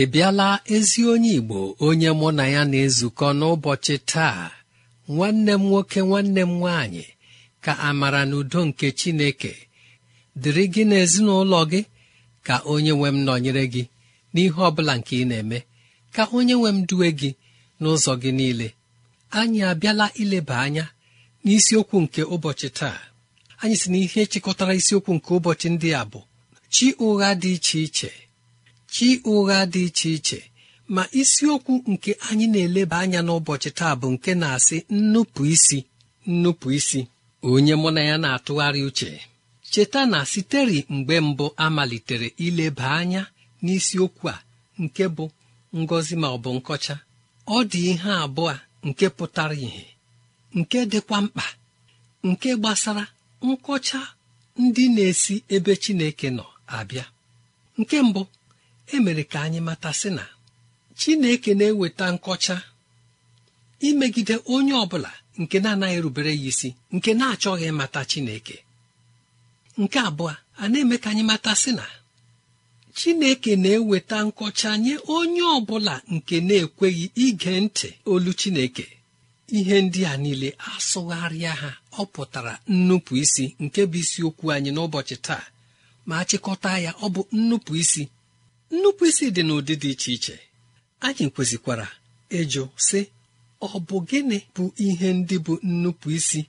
ị bịala ezi onye Igbo onye mụ na ya na-ezukọ n'ụbọchị taa nwanne m nwoke nwanne m nwaanyị ka amara na udo nke Chineke dịrị gị n'ezinụlọ gị ka onye nwe m nọnyere gị n'ihe ọ bụla nke ị na-eme ka onye nwe m duwe gị n'ụzọ gị niile anyị abịala ileba anya n'isiokwu nke ụbọchị taa anyị si na ihe chịkọtara isiokwu nke ụbọchị ndị a bụ chi ụgha dị iche iche chi ụgha dị iche iche ma isiokwu nke anyị na-eleba anya n'ụbọchị taa bụ nke na-asị nnupụ isi nnupụ isi onye mụ na ya na-atụgharị uche cheta na siteri mgbe mbụ amalitere malitere ileba anya n'isiokwu a nke bụ ngọzi ma ọ bụ nkọcha ọ dị ihe abụọ nke pụtara ìhè nke dịkwa mkpa nke gbasara nkọcha ndị na-esi ebe Chineke nọ abịa nke mbụ emere ka anyị mata si na chineke na-eweta nkọcha imegide onye ọ bụla nke na-anaghị rubere ya isi nke na-achọghị mata chineke nke abụọ a na-eme ka anyị mata sị na chineke na-eweta nkọcha nye onye ọbụla nke na-ekweghị ige ntị olu chineke ihe ndị a niile asụgharịa ha ọ pụtara nnupụ isi nke bụ isiokwu anyị n'ụbọchị taa ma chịkọta ya ọ bụ nnupụ isi nnupụisi dị n'ụdị dị iche iche anyị kwesịkwara ịjụ sị ọ bụ gịnị bụ ihe ndị bụ nnupụisi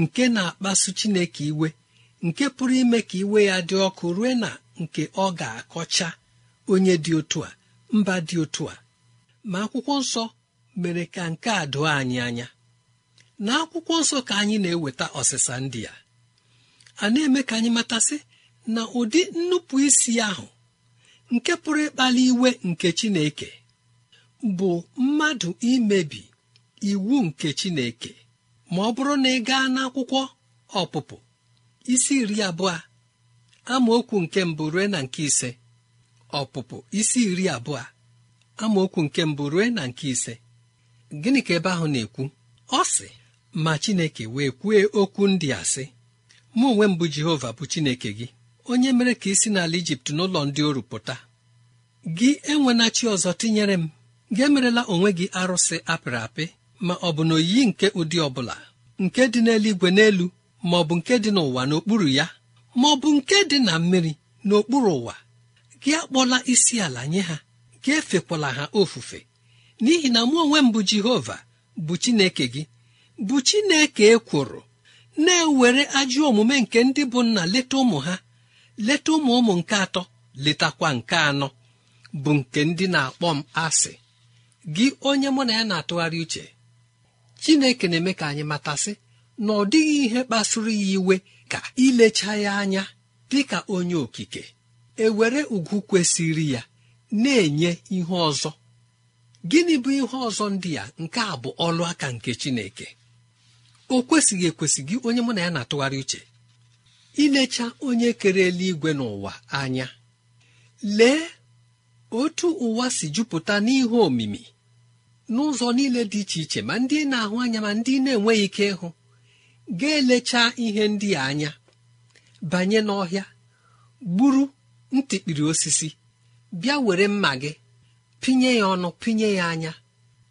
nke na-akpasu chineke iwe nke pụrụ ime ka iwe ya dị ọkụ rue na nke ọ ga-akọcha onye dị otu a mba dị otu a ma akwụkwọ nsọ mere ka nke a doo anyị anya na akwụkwọ nsọ ka anyị na-eweta ọsịsa ndị a a na-eme ka anyị matasị na ụdị nnupụisi ahụ nke pụrụ ịkpali iwe nke chineke bụ mmadụ imebi iwu nke chineke ma ọ bụrụ na ị gaa n'akwụkwọ ọpụpụ isi iri abụọ amaokwu nke mbụ rue na nke ise ọpụpụ isi iri abụọ amaokwu nke mbụ rue na nke ise gịnị ka ebe ahụ na-ekwu ọ sị ma chineke wee kwue okwu ndị asị! sị mụ onwe mbụ jehova bụ chineke gị onye mere ka isi n'ala ijipt n'ụlọ ndị oru pụta gị enwena chi ọzọ tinyere m gị emerela onwe gị arụsị apịrị apị ma ọ bụ na oyiyi nke ụdị ọbụla nke dị n'eluigwe n'elu ma ọ bụ nke dị n'ụwa n'okpuru ya ma ọ bụ nke dị na mmiri n'okpuru ụwa gị akpọla isi ala nye ha gị efekwala ha ofufe n'ihi na mụ onwe m bụ jehova bụ chineke gị bụ chineke ekworo na-ewere ajọ omume nke ndị bụ nna leta ụmụ ha leta ụmụ ụmụ nke atọ letakwa nke anọ bụ nke ndị na-akpọ m asị gị onye mụ na ya na-atụgharị uche chineke na-eme ka anyị matasị na ọ dịghị ihe kpasuru ya iwe ka ilecha ya anya dị ka onye okike ewere ugwu kwesịrị ya na-enye ihe ọzọ gịnị bụ ihe ọzọ ndị ya nke a bụ ọlụ aka nke chineke o kwesịghị ekwesị gị onye mụ na ya na-atụgharị uche ilecha onye kere eluigwe n'ụwa anya lee otu ụwa si jupụta n'ihu omimi n'ụzọ niile dị iche iche ma ndị na-ahụ anya ma ndị na-enweghị ike ịhụ ga-elecha ihe ndị a anya banye n'ọhịa gburu ntịkpiri osisi bịa were mma gị pinye ya ọnụ pinye ya anya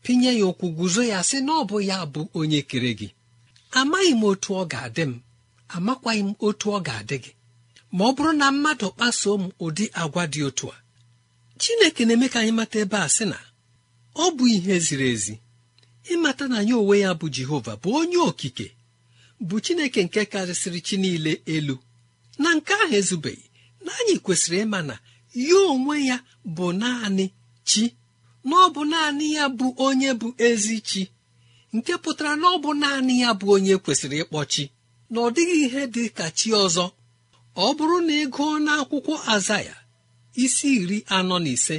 pinye ya ụkwụ guzo ya sị na ọ bụ ya bụ onye kere gị amaghị m otu ọ ga-adị m amakwaghị m otu ọ ga-adị gị ma ọ bụrụ na mmadụ kpasuo m ụdị agwa dị otu a chineke na-eme ka anyị mata ebe a sị na ọ bụ ihe ziri ezi ịmata na ya onwe ya bụ jehova bụ onye okike bụ chineke nke karịsịrị chi niile elu na nke ahụ ezubeghị na anyị kwesịrị ịma na ya onwe ya bụ naanị chi na ọ bụ naanị ya bụ onye bụ ezi chi nke pụtara na ọ bụ naanị ya bụ onye kwesịrị ịkpọ chi na ọ dịghị ihe dị ka chi ọzọ ọ bụrụ na ị gụọ n'akwụkwọ azaya isi iri anọ na ise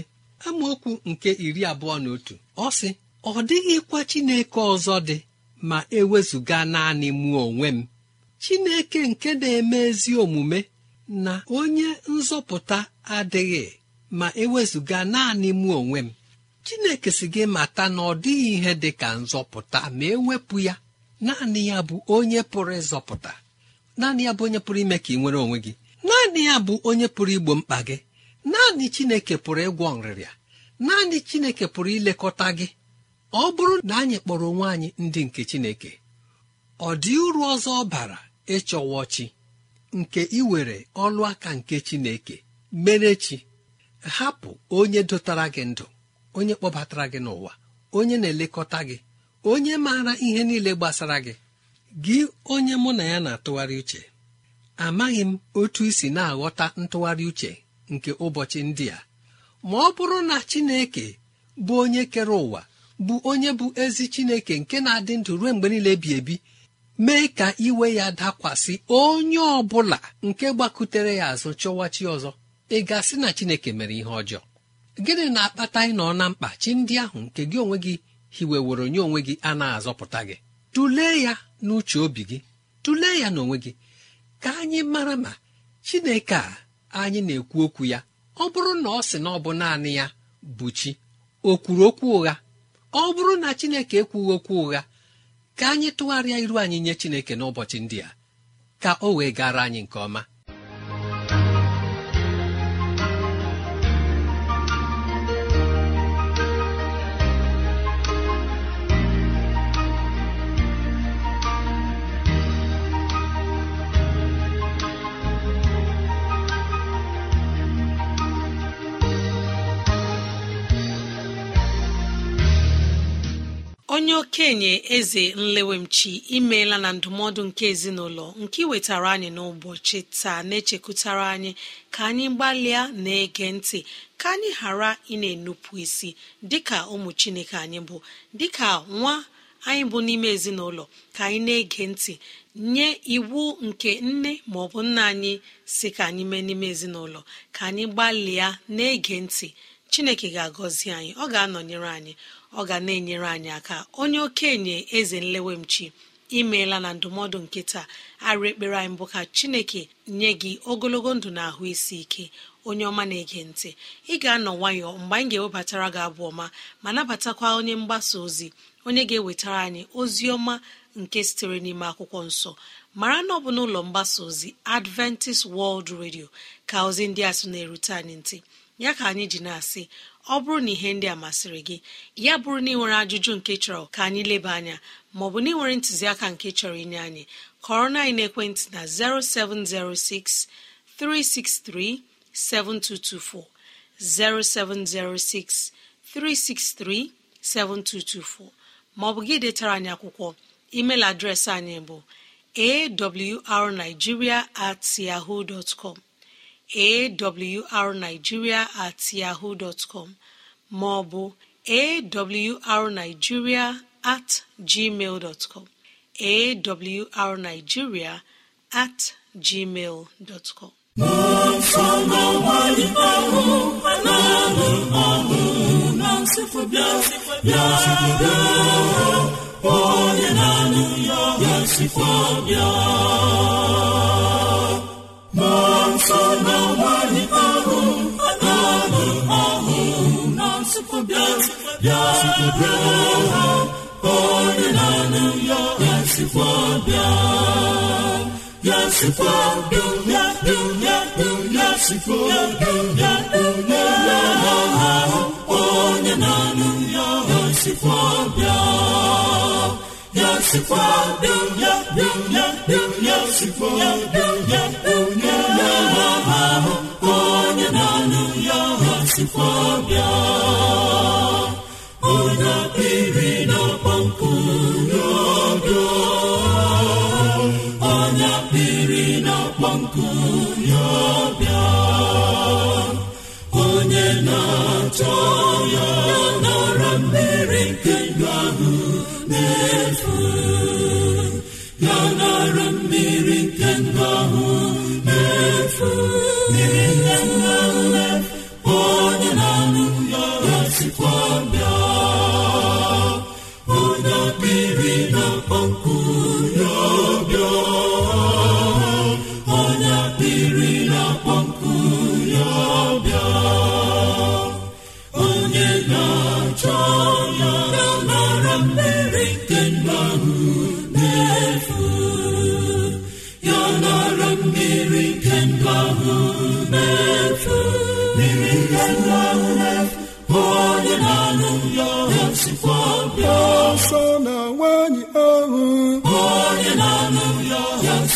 amaokwu nke iri abụọ na otu ọ sị ọ dịghịkwa chineke ọzọ dị ma ewezụga naanị mụ onwe m chineke nke na-eme ezi omume na onye nzọpụta adịghị ma ewezụga naanị mụ onwe m chineke si gị mata na ọ dịghị ihe dị ka nzọpụta ma ewepụ ya naanị ya bụ onye pụrụ ịzọpụta naanị ya bụ onye pụrụ ime ka ị nwere onwe gị naanị ya bụ onye pụrụ igbo mkpa gị naanị chineke pụrụ ịgwọ nrịrịa naanị chineke pụrụ ilekọta gị ọ bụrụ na anyị kpọrọ onwe anyị ndị nke chineke ọ dị uru ọzọ ọ bara ịchọwa chi nke iwere ọlụ aka nke chineke mere chi hapụ onye dotara gị ndụ onye kpọbatara gị n'ụwa onye na-elekọta gị onye maara ihe niile gbasara gị gị onye mụ na ya na-atụgharị uche amaghị m otu isi na-aghọta ntụgharị uche nke ụbọchị ndị a ma ọ bụrụ na Chineke bụ onye kere ụwa bụ onye bụ ezi Chineke nke na-adị ndụ ruo mgbe niile bi ebi mee ka iwe ya dakwasị onye ọ bụla nke gbakutere ya azụ chọwa ọzọ ị gasị na Chineke mere ihe ọjọọ gịnị na-akpata ịnọ na mkpa chi ndị ahụ nke gị onwe gị hiweworo onye onwe gị a na-azọpụta gị tụlee ya n'uche obi gị tụlee ya n'onwe gị ka anyị mara ma chineke a anyị na-ekwu okwu ya ọ bụrụ na ọ sị na ọ bụ naanị ya bụ chi o kwuru okwu ụgha ọ bụrụ na chineke ekwughị okwu ụgha ka anyị tụgharịa iru anyị nye chineke n'ụbọchị ndị a ka o wee gara anyị nke ọma okenye eze nlewemchi imeela na ndụmọdụ nke ezinụlọ nke wetara anyị n'ụbọchị taa na-echekụtara anyị ka anyị gbalịa na-ege ntị ka anyị ghara ị na-enupụ isi dịka ụmụ chineke anyị bụ dịka nwa anyị bụ n'ime ezinụlọ ka anyị na-ege ntị nye iwu nke nne bụ nna anyị si ka anyị mee n'ime ezinụlọ ka anyị gbalịa na-ege ntị chineke ga-agọzi anyị ọ ga-anọnyere anyị ọ ga na-enyere anyị aka onye okenye eze nlewemchi imeela na ndụmọdụ nke taa arụ ekpere anyị mbụ ka chineke nye gị ogologo ndụ na ahụ isi ike onye ọma na-ege ntị ị ga-anọ nwayọọ mgbe anyị ga-ewebatara gị abụ ọma ma nabatakwa onye mgbasa ozi onye ga-ewetara anyị ozi ọma nke sitere n'ime akwụkwọ nsọ mara na ọ bụ n'ụlọ mgbasa ozi adventist world radio ka ozi ndị a sị na-erute anyị ntị ya ka anyị ji na-asị ọ bụrụ na ihe ndị a masịrị gị ya bụrụ na ị nwere ajụjụ nke chọrọ ka anyị leba anya maọbụ na ị nwere ntụziaka nke chọrọ inye anyị kọrọ na ekwentị na 0706 363 7224, 0706 363 7224 maọbụ gị detara anyị akwụkwọ email adreesị anyị bụ awrnigeria at yahoo dot com awrnigeria at yahoo dọtcọm maọbụ awrnigeria at gmail dọtcọm awrnigeria at gmail dọtcọm onye na-anụ ya ya nọ nso na nwaanyị ahụ ahụ na nsụpụbịa bịa na ya ya bịa ya onye na-anụ ya ya bịa ya sikwa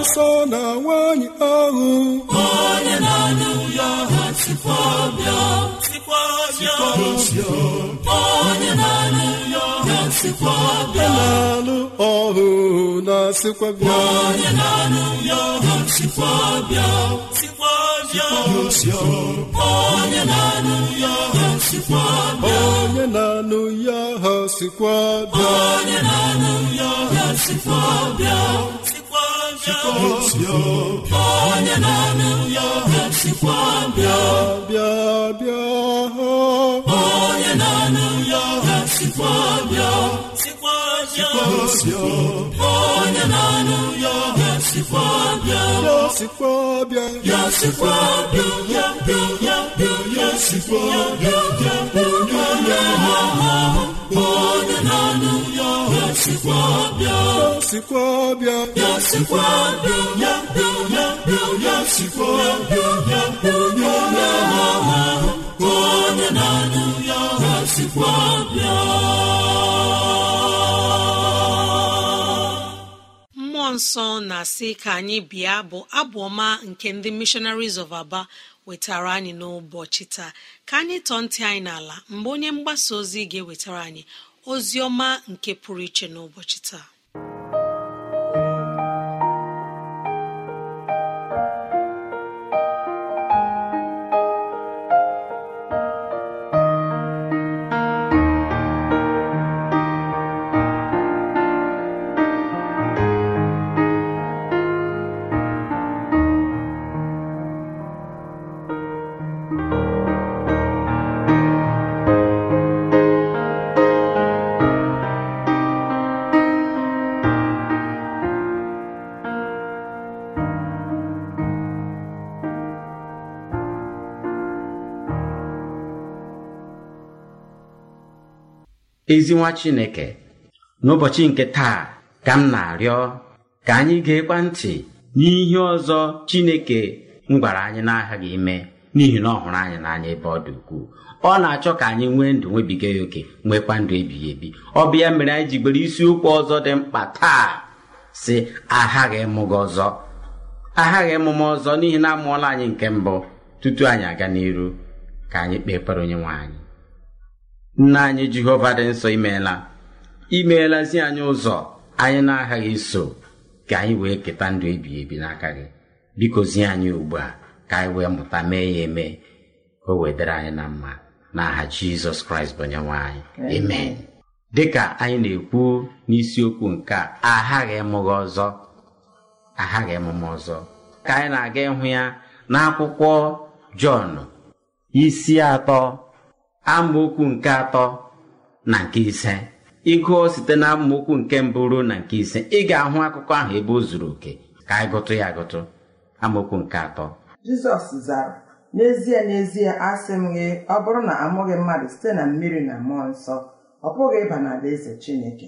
nsọ na nwanyị ahụ onye na-anụ ya ha sikwa na sikwa bịa onye na-anụ ya na-alụ ọhụ na-asịkwa bịa onye na-alụ ya ọhụ sikwa bịa sikwa bịa onye na-alụ ya ọhụ sikwa bịa onye na-alụ ya ọhụ sikwa bịa onye na-alụ ya ọhụ sikwa bịa onye na-alụ ya ọhụ sikwa bịa bịa bịa onye na-alụ ya ọhụ sikwa bịa onye na-anụ ya sikwa ya sikwa bịa ya sikwa ya ya ya sikwa ya sikwa ya sikwa ya sikwa ya nsọ na-asị ka anyị bịa bụ abụ ọma nke ndị missionaries of aba wetara anyị n'ụbọchị taa ka anyị tọọ ntị anyị n'ala mgbe onye mgbasa ozi ga-ewetara anyị ozi ọma nke pụrụ iche n'ụbọchị taa ezi nwa chineke n'ụbọchị nke taa ka m na-arịọ ka anyị ga-ekwa ntị n'ihe ọzọ chineke m gwara anyị n'aghaghị aghaghị ime n'ihi na ọ hụrụ anyị n'anya ebe ọ dị ukwuu ọ na-achọ ka anyị nwee ndụ nwebiga ya oke nwekwa ndụ ebighị ebi ọ bụ ya mere anyị jigbere isiokwu ọzọ dị mkpa taa si aghaghị emume ọzọ aghaghị ọzọ n'ihi na amụọla anyị nke mbụ tutu anyị aga n'iru ka anyị kpee ekpere onye nwe anyị nna anyị jehova dị nsọ imeela imeelazi anyị ụzọ anyị na-aghaghị iso ka anyị wee keta ndụ ebighị ebi n'aka gị bikozie anyị ugbu a ka anyị wee mụta mee ya eme ka o wedere anyị na mma aha jizọs kraịst bụ onyenwe anyị amen dịka anyị na-ekwu n'isiokwu nke a aghaghị ịmụghị ọzọ aghaghị emume ọzọ ka anyị na-aga ịhụ ya n'akwụkwọ jọn isi atọ amaokwu nke atọ na nke ise ịgụọ site na amaokwu nke mbụ ruo na nke ise ị ga-ahụ akụkọ ahụ ebe o zuru oke ka anyị gụtụ ya agụtụ amaokwu nke atọ jizọs zara n'ezie n'ezie asị m gị ọ bụrụ na amụghị mmadụ site na mmiri na mmụọ nsọ ọ pụghị ịba na-adị n'alaeze chineke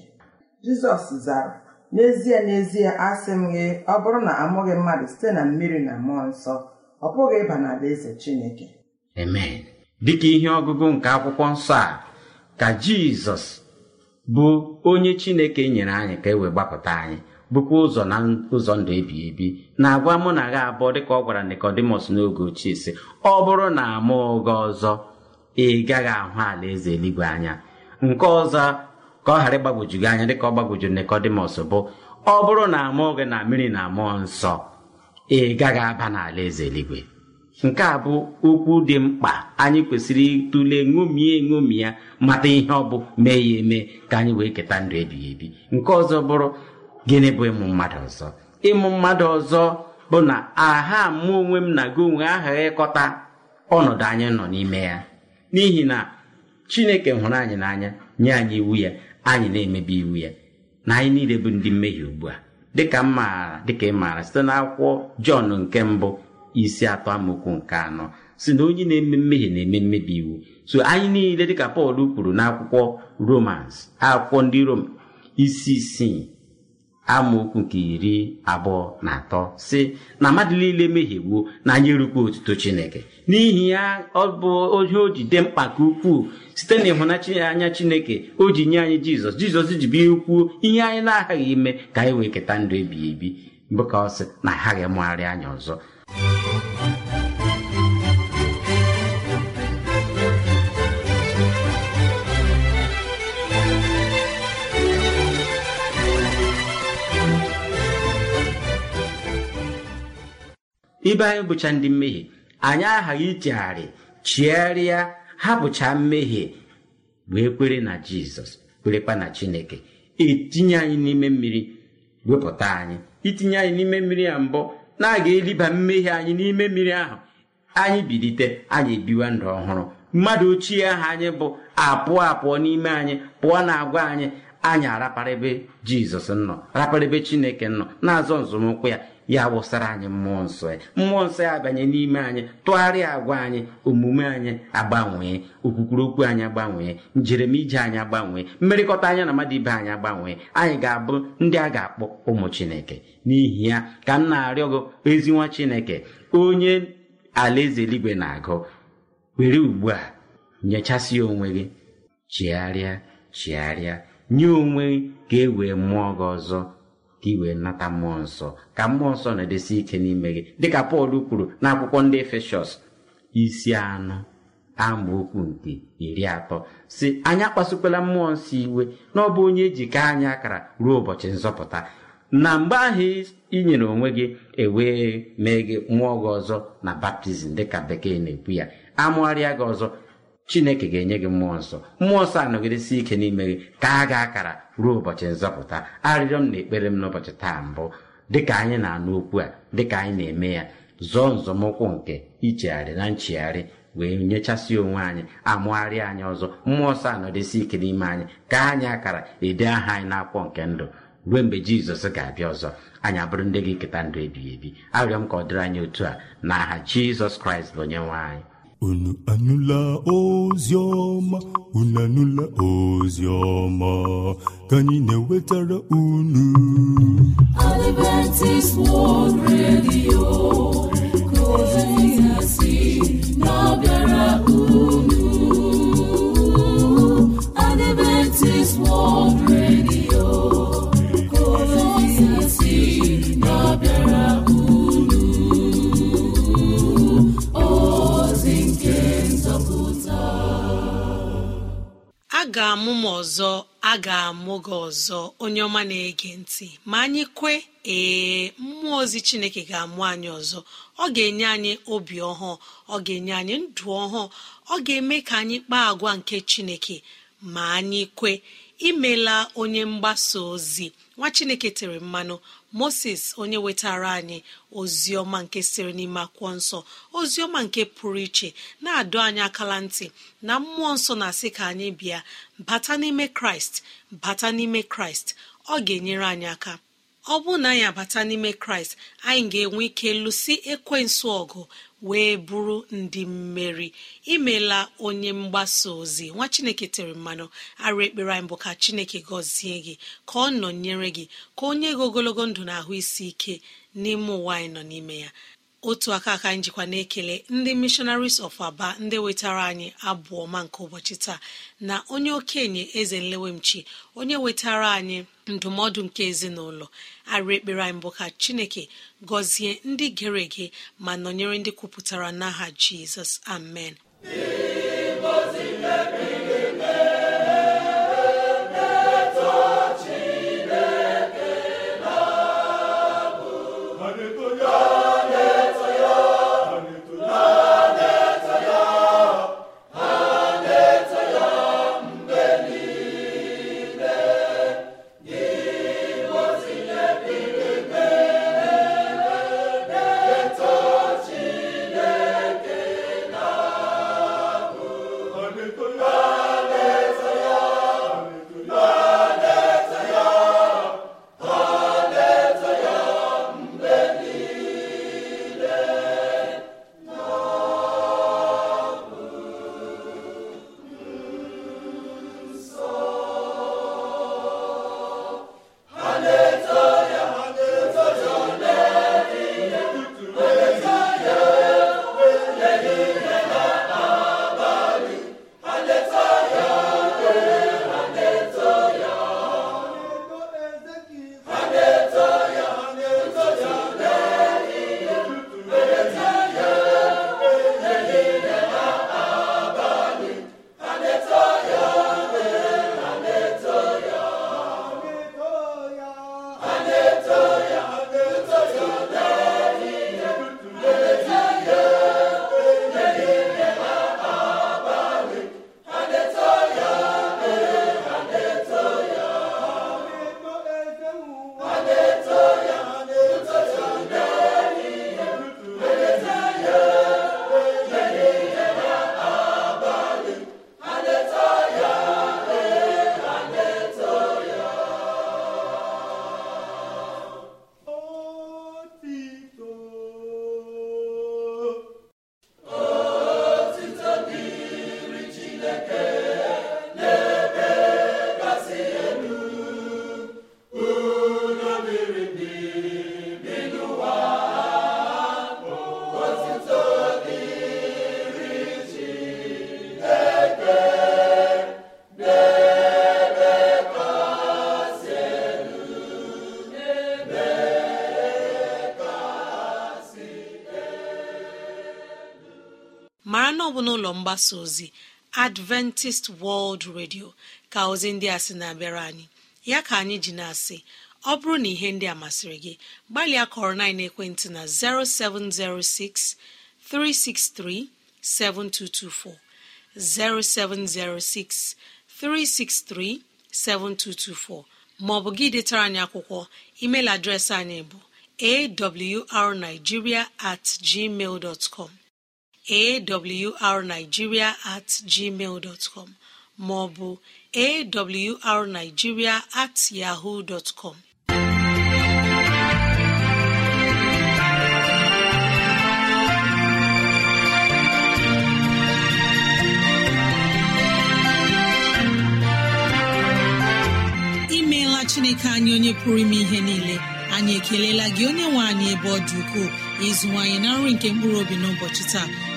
jizọs zara n'ezie n'ezie asị m gị ọ bụrụ na amụghị mmadụ site na mmiri na mmụọ nsọ ọ pụghị ịba na-adị n'alaeze chineke amen ka ihe ọgụgụ nke akwụkwọ nsọ a ka jizọs bụ onye chineke nyere anyị ka e wee gbapụta anyị bụkwa ụzọ na ụzọ ndụ ebi ebi na-agwa mụ na gha abụọ dịka ọ gwara Nikọdimọs n'oge ochie sị ọ bụrụ na ama ụga ọzọ ị gaghị ahụ ala eze eluigwe anya nke ọzọ ka ọ ghara ịgbagwoju gị anya dịka ọ gbagwojuru Nikọdimọs bụ ọ bụrụ na amụ gị na mmiri na mmụọ nsọ ị gaghị aba n'ala eze eluigwe nke a bụ okwu dị mkpa anyị kwesịrị ịtụle ṅomie ṅomi ya mata ihe ọ bụ mee ya eme ka anyị wee keta ndụ ebighị ebi nke ọzọ bụrụ gịnị bụ ịmụ mmadụ ọzọ ịmụ mmadụ ọzọ bụ na aha mụ onwe m na gị onwe aha ịkọta ọnọdụ anyị nọ n'ime ya n'ihi na chineke hụrụ anyị n'anya nye anyị iwu ya anyị na-emebi iwu ya na anyị niile bụ ndị mmehie ugbu a dịka m maara dịka ị maara site n'akwụkwọ jọn nke mbụ isi atọ amaokwu nke anọ si na onye na-eme mmehie na-eme mmebi iwu so anyị niile dịka pọl kwuru n'akwụkwọ romans akwụkwọ ndị rom isi isii amaokwu nke iri abụọ na atọ si na mmadụ niile mehiegbuo na anyị erukwa otuto chineke n'ihi ya ọ bụ ohe o ji dị mkpa nke ukwuu site na ịhụnanya chineke o ji nye anyị jizọs jizọs ji bie kwuo ihe anyị na-aghaghị ime ka anyị wee keta ndụ ebighị ebi bụ ka ọ sị na aghaghị mụgharị anya ọzọ ibe anyị bụcha ndị mmehie anyị aghaghị ichegharị chigharịa hapụcha mmehie wee kwere na jizọs kwerekwa na chineke etinye anyị n'ime mmiri wepụta anyị itinye anyị n'ime mmiri ya mbụ na-aga eliba mmehie anyị n'ime mmiri ahụ anyị bilite anyị ebiwa ndụ ọhụrụ mmadụ ochie ahụ anyị bụ apụọ apụọ n'ime anyị pụọ na agwa anyị anyị araparịbe jizọs nọ chineke nọ na-azọ nzọmụkwụ ya ya wụsara anyị mmụọ nsọ ya e. mmụọ nsọ ya e abanye n'ime anyị tụgharịa agwa anyị omume anyị agbanwee okwukwuru okwu anyị agbanwee njeremije anyị agbanwee mmerịkọta anya na mmadụ ibe anyị agbanwee anyị ga-abụ ndị a ga-akpọ ụmụ chineke n'ihi ya ka m na-arịọ gị ezi nwa chineke onye alaeze eluigwe na-agụ were ugbu a nyechasị onwe gị chigharịa chigharịa nye onwe gị ka e wee mụọ gị ọzọ ka ị wee nata mmụọ nsọ ka mmụọ nsọ na-edesi ike n'ime gị dịka pọl kwuru n'akwụkwọ ndị efeshọs isi anụ. anọ okwu nke iri atọ si anyị akpasukwala mmụọ nsọ iwe na ọ bụ onye ejike anyị akara ruo ụbọchị nzọpụta na mgbe ahụ i nyere onwe gị ewee mee gị mmụọ gị ọzọ na baptizim dịka bekee na-ekwu ya amụgharịa gị ọzọ chineke ga-enye gị mmụọ nsọ mmụọ nsọ anọgidesi ike n'ime gị ka a ga akara ruo ụbọchị nzọpụta arịrịọ m na ekpere m n'ụbọchị taa mbụ dịka anyị na-anụ okwu a dịka anyị na-eme ya zọọ nzọmụkwụ nke ichegharị na nchegharị wee nyechasị onwe anyị amụgharị anyị ọzọ mmụọ nsọ anọdesi ike n'ime anyị ka anyị akara ede aha anyị n'akwụkwọ nke ndụ ruo mgbe jizọs ga-abịa ọzọ anyị abụrụ ndị gị keta ndụ ebighị ebi arịọ m ka ọ dịrị anyị otu a na aha jizọs kraịst bụ onye nwe anyị unu anụla ozi ọma unu anụla ozi ka anyị na-ewetara unu unu Adventist World Radio ga-amụ m ọzọ a ga-amụ gị ọzọ onye ọma na-ege ntị ma anyị kwe ee mmụọ ozi chineke ga-amụ anyị ọzọ ọ ga-enye anyị obi ọhụụ ọ ga-enye anyị ndụ ọhụụ ọ ga-eme ka anyị kpaa agwa nke chineke ma anyị kwe imela onye mgbasa ozi nwa chineke tere mmanụ moses onye wetara anyị ọma nke sịrị n'ime akwụkwọ nsọ ọma nke pụrụ iche na-adọ anyị akala ntị na mmụọ nsọ na-asị ka anyị bịa bata n'ime kraịst bata n'ime kraịst ọ ga-enyere anyị aka ọ bụrụ na anyị abata n'ime kraịst anyị ga-enwe ike lụsi ekwensu ọgụ wee bụrụ ndị mmeri imela onye mgbasa ozi nwa chineke tere mmanụ arụ ekpere anyị bụ ka chineke gọzie gị ka ọ nọnyere gị ka onye gị ogologo ndụ na ahụ isi ike n'ime ụwa anyị nọ n'ime ya otu aka aka njikwa na-ekele ndị missionaries of aba ndị wetara anyị abụọ ọma nke ụbọchị taa na onye okenye eze nlewemchi onye wetara anyị ndụmọdụ nke ezinụlọ arịa ekpere anyị mbụ ka chineke gọzie ndị gere ege ma nọnyere ndị kwupụtara n'aha jizọs amen mara na ọ bụ n'ụlọ mgbasa ozi adventist World Radio ka ozi ndị a sị na-abịara anyị ya ka anyị ji na-asị ọ bụrụ na ihe ndị a masịrị gị gbalịa kọrọ na ekwentị na 0706 363 7224 0706 363 7224 maọbụ gị detara anyị akwụkwọ email adreesị anyị bụ awrnigeria at gmail dot com awrnigeria at gmail dọtcọm maọbụ awrnigeria at yahoo dọtcọm imeela chineke anyị onye pụrụ ime ihe niile anyị ekelela gị onye nwe anyị ebe ọ dị ukwuu ịzụwanyị na nri nke mkpụrụ obi n'ụbọchị taa